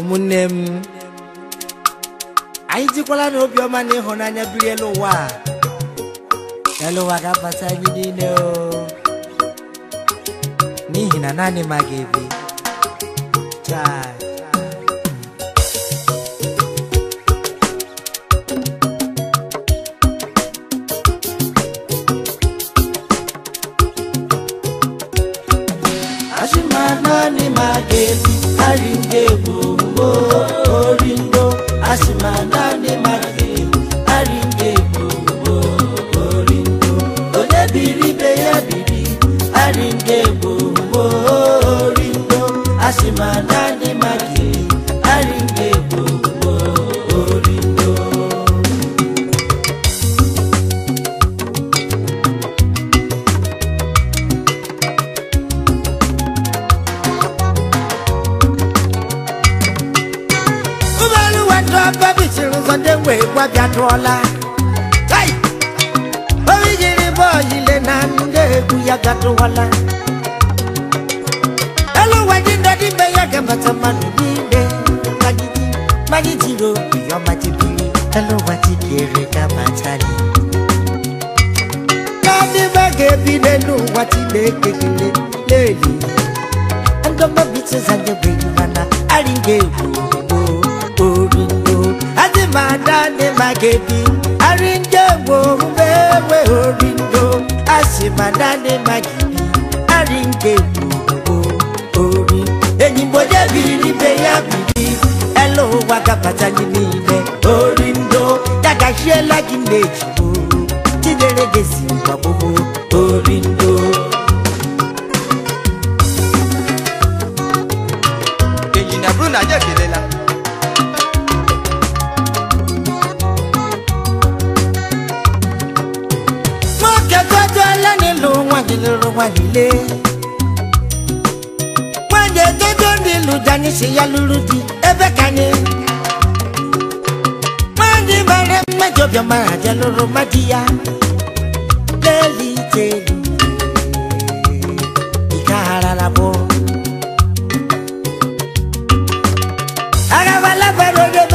ụmụnne m anyị jikwala na obiọma na ịhụnanya elu ụwa elu ụwa ga-abata anyị niile n'ihi na naanị ma ga-ebi ebi aringe gbogbo oringo asimana ni magi aringe gbogbo oringo onye biri be ya aringe gbogbo oringo asimana ni magi. kwa bya tola hey bavigile boyile na nge kuya gatola hello wajinda dimbe ya gamba tamani dimbe magiji magiji ro ya magiji hello wajikere kama chali kadi bage bide nu wajile kekele leli ndomba bitse zange bwe kana alinge ubu Ramadan wo Maghedi àríjẹ̀wò wẹ́wẹ́ òrìndó àṣìmàdá ní Maghedi àríjẹ̀wò orí. èyí bó débi ní bẹ́yà bìbí ẹ ló wá kápátá ní ní ilẹ̀ òrìndó dàgà ṣe lágìlẹ̀ jù jíjẹrẹgẹ sí ìgbà gbogbo òrìndó. èyí nàbúrò nàjẹ́ kìlẹ̀ la. lóró wà nílé. Wọ́n yẹ tójó ní lùdání ṣe ya lúrú di ẹbẹ́ ká ni. Wọ́n ní bàrẹ́ mẹ́jọ bí ọmọ àjẹ lóró má di ya. Lẹ́ẹ̀lì tèlú ìka ara la bọ̀. Ara wa lábẹ́rẹ́ ẹbẹ́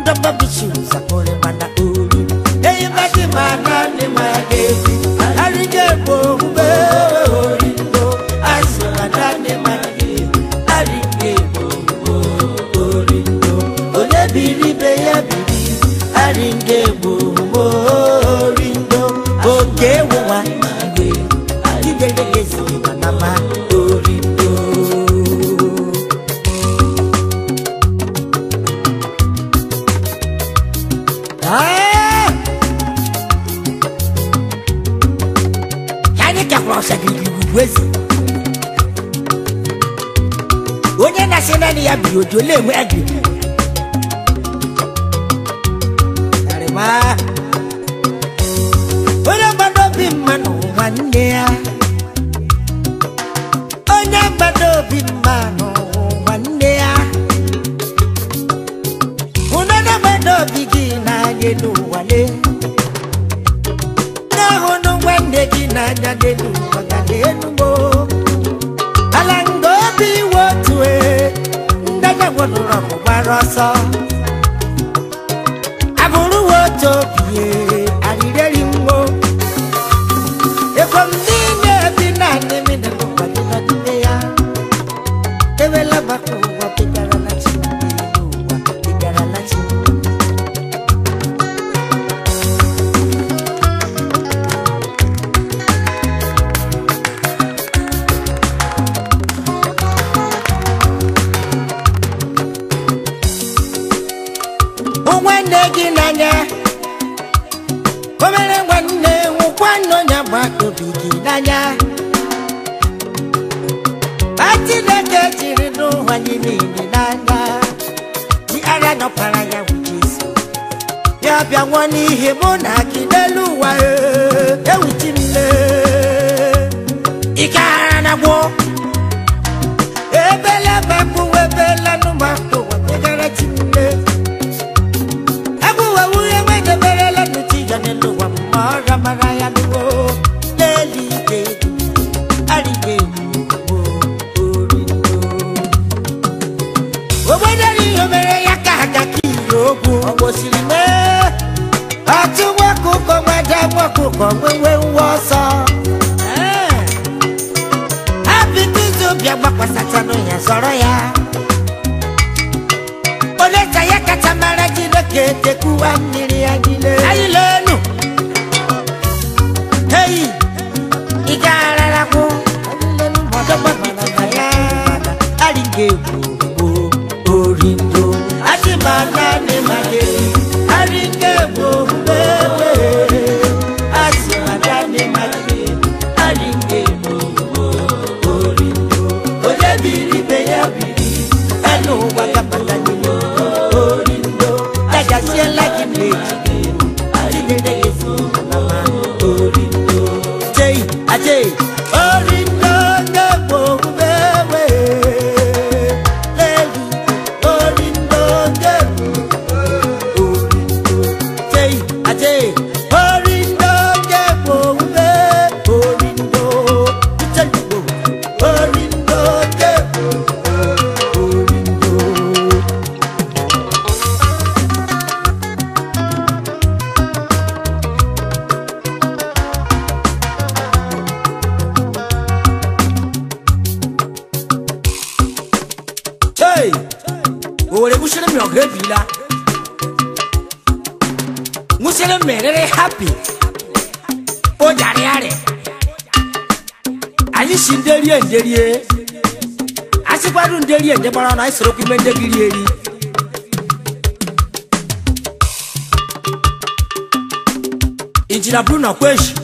ndababishuza kolebana Ojo lè wẹ́ẹ̀dì. Sàrìmá. Onye gbado obi mmanụ nwanne ya. Onye gbado obi mmanụ nwanne ya. Hụna na gbado obi gị n'anya n'ụwale. Na-ahụnụ nwanne gị n'anya passar nne gị n'anya o mere nwanne nwụkwa n'onye agbata obi gị n'anya a chineke jiri n'ụwa gị niile n'anya dị ara nọpara ya wụ Jesu ya bịa nwụọ n'ihe mụ na gị n'elu ụwa ewuchi m ike ara na gboo Kwasa wasatanu ya zoro ya. oleta ya kacha mara Chineke tekwuwa mmiri ya niile. anyị lenu heyi ị ga-ararakwu ọdọgbọgbọ na ya arị ga-egwu dókè orí ń dókè orí ń dó ìjẹ́ orí ń dókè orí ń Hey! Owó rẹ̀ kú ṣẹlẹ̀ mi ọ̀gá ẹ̀bí la. Angela made it happy. Oh, daddy, daddy. Ayi si nderi e nderi e. Asikwadu nderi e ndebara na isoro kume ndegiri eri. Injina Bruno Kweshi.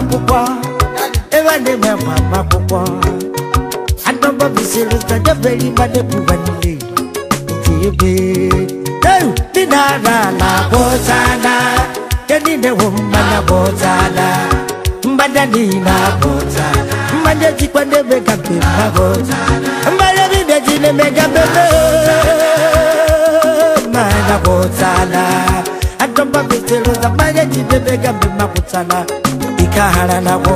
mabukwa evane mama mabukwa anoba viseluta jabelima nebuvanile ebe ninarala bozala yenine wommana bozala mbanja nina bozala mbanja zikwa nebekapema bozala mbanja vinde zine megapeme mana bozala anoba viseluta mbanja zine megapema bozala kahana nabo